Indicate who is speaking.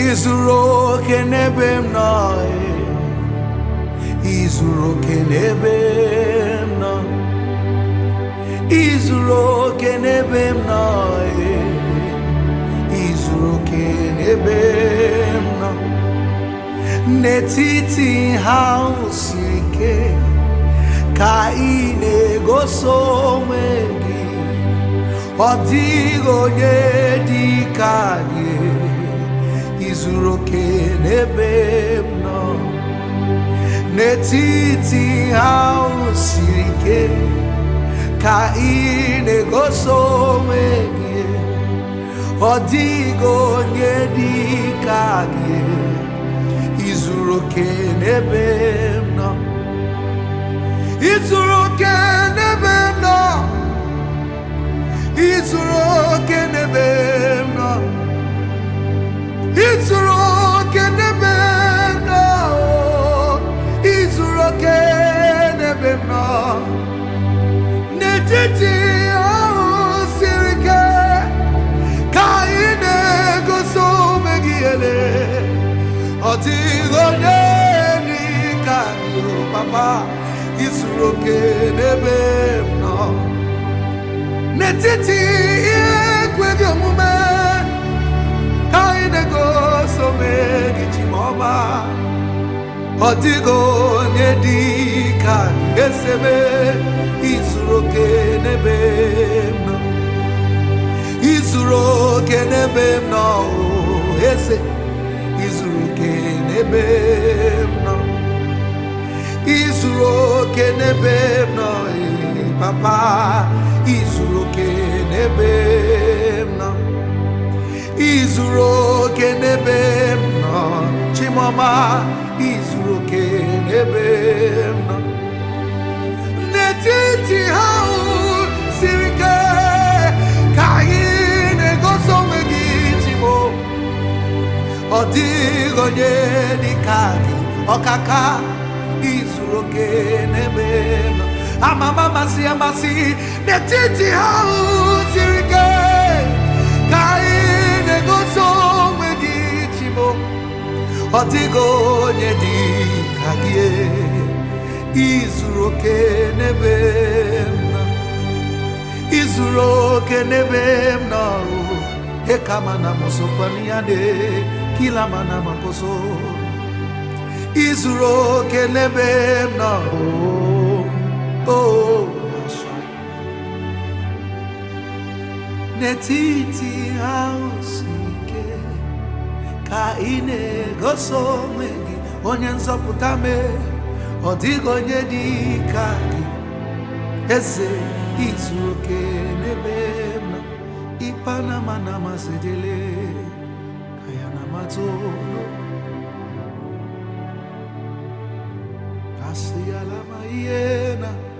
Speaker 1: izuru oke n'ebe m nọ izuru oke n'ebe m nọ izuru oke n'ebe m nọ n'etiti ha siri ike ka ị na-egosi onwe gị ọ dịghị onye dị ka gị zuru oke n'ebe m nọ n'etiti ha siri ike ka ị na-egosi onwe gị ọ dịghị onye dị ka gị izuru oke n'ebe m nọ izuru oke n'ebe m nọ izuru n'etiti ahụ siri ike ka anyị na-egosi ome gị ele ọ dịghị onye dị ka n'ụlọ papa izuru oke n'ebe m nọ n'etiti ihe ekweghị omume ka anyị na-egosi ome gị ji ọma ọ dịghị onye dị ka esebe izuru oke n'ebe m nọ eze izuru oke n'ebe m nọ izuru oke n'ebe m nọ eh, papa izuru oke n'ebe m nọ izuru oke n'ebe m nọ chimoma izuru oke n'ebe m nọ ọ dịghị onye dịka gị ọkaka izuru oke n'ebe nọ amama masị amasị n'etiti ha siri ike ka anyị na-egosi onwe gị chibo ọ dịghị onye dịka gị e. izuru oke n'ebe nọ izuru oke n'ebe m nọ ịka mana m sokwa ya na kila mana makoso izuru oke n'ebe m nọ oh, oh, n'etiti si ike ka ị na-egosi onwe gị onye nzọpụta mee ọ dịghị onye dị ka gị eze izu oke n'ebe m nọ ịpa na mana attorno passi la maiena